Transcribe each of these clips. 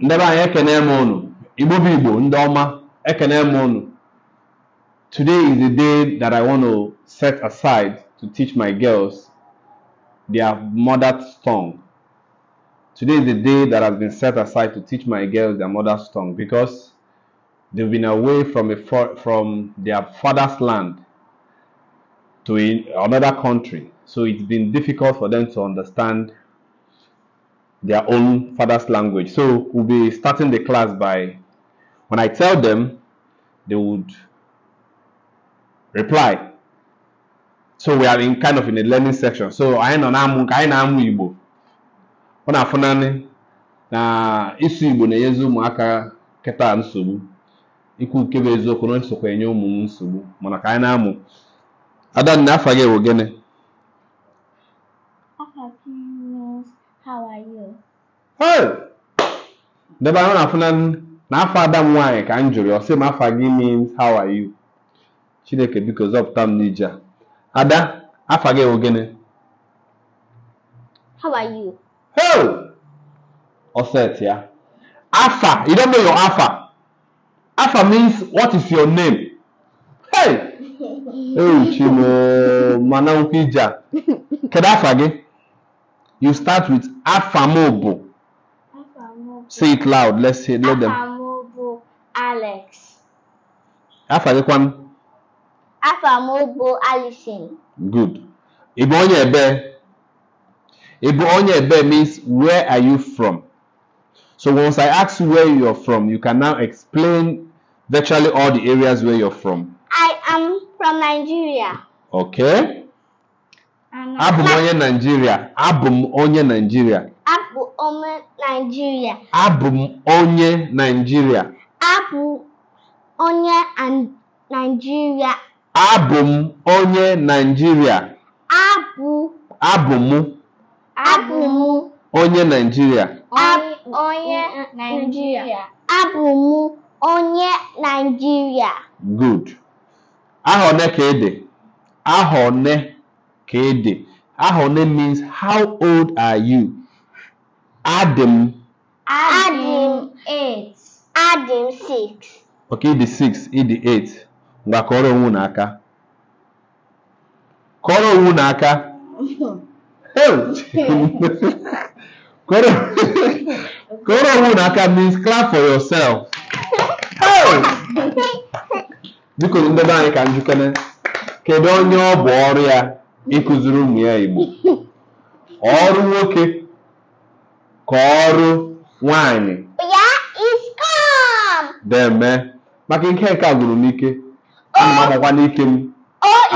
ndebe anyị ekene m unu igbo bụ igbo ndị ọma ekene m unu today is the day that i want to set aside to teach my girls their mother's tongue today is the day that has been set aside to teach my girls their mother's tongue because they've been away from a from their father's land to another country so it's been difficult for them to understand their own father's language. So we'll be starting the class by when I tell them, they would reply. So we are in kind of in a learning section. So I know na I n'amụ Igbo. Ọ na-afụ naanị na isu Igbo na-enyezi ụmụaka keta nsogbu ikwu nke bụ eziokwu na nsokwa ụmụ nsogbu mana ka anyị na-amụ adanna afọ gị bụ gịnị debe ahụ na-afụna n'afọ ada m nwaanyị ka m jụrụ ọ sị afa gị means how are you chineke biko zọpụta m n'ije a ada afa gị ewu gịnị how are you hey ya afa you don't know your afa afa means what is your name hey ewuchimo mana nkwụ ije a kedu afa gị you start with afa m bụ Say it loud. Let's hear. Let them. Afamobo Alex. Afa gịkwanụ? Afa m Alison. Good. Ị bụ means where are you from? So once I ask you where you're from, you can now explain virtually all the areas where you're from. I am from Nigeria. Okay. Abum onye Nigeria. Abum onye Nigeria. onye Naijiria. Abụ m onye Naijiria. Abụ onye Naijiria. Abụ m onye Naijiria. Abụ. Abụ m. Abụ m. Onye Naịjirịa onye Naijiria. Abụ m onye Naijiria. Good. Aha one ka ị dị? Aha one ka ị dị? Aha one means how old are you? Adam. Adam 8. Adam 6. Ok, the 6, the 8. Ngakoro unaka. Koro unaka. Koro Koro unaka means clap for yourself. Biko ndị be anyị ka njikere kedu onye ọ bụ ọrụ ya ịkụziri ụmụ ya Igbo ọrụ nwoke kọọrụ nwanyị ya is come deme maka nke nke a gwụrụ m ike ana m agbakwa n'ike m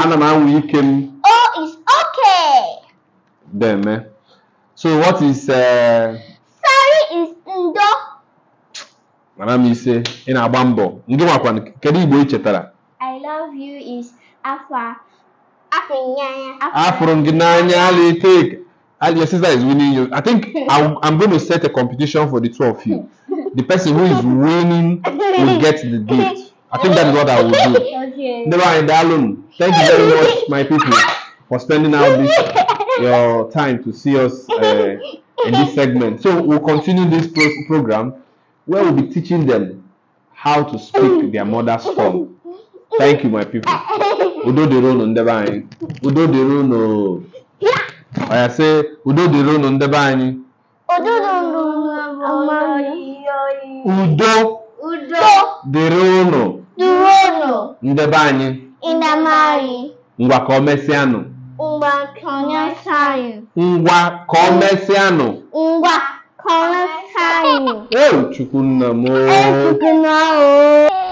ana m anwụ ike m is okay deme so what is uh, sorry is ndo mara m ise ị na-agba mbọ ndị nwakwa kedu igbo ị chetara i love you is afọ. afụrụ gị n'anya ala take and your sister is winning you i think i'm, I'm going to set a competition for the two of you the person who is winning will get the gift i think that is what i will do okay. never mind alone thank you very much my people for spending out this your time to see us uh, in this segment so we'll continue this pro- program where we'll be teaching them how to speak their mother's tongue thank you my people udo dịrị unu udo dịrị unu ya sị udo dịrị unu ndebe anyị udo dịrị unu ndebe anyị ngwa ka o mesịanụ ngwa ka o mesịanụ ngwa ka o mesịanụ ngwa ka o mesịanụ e chukwu nna m o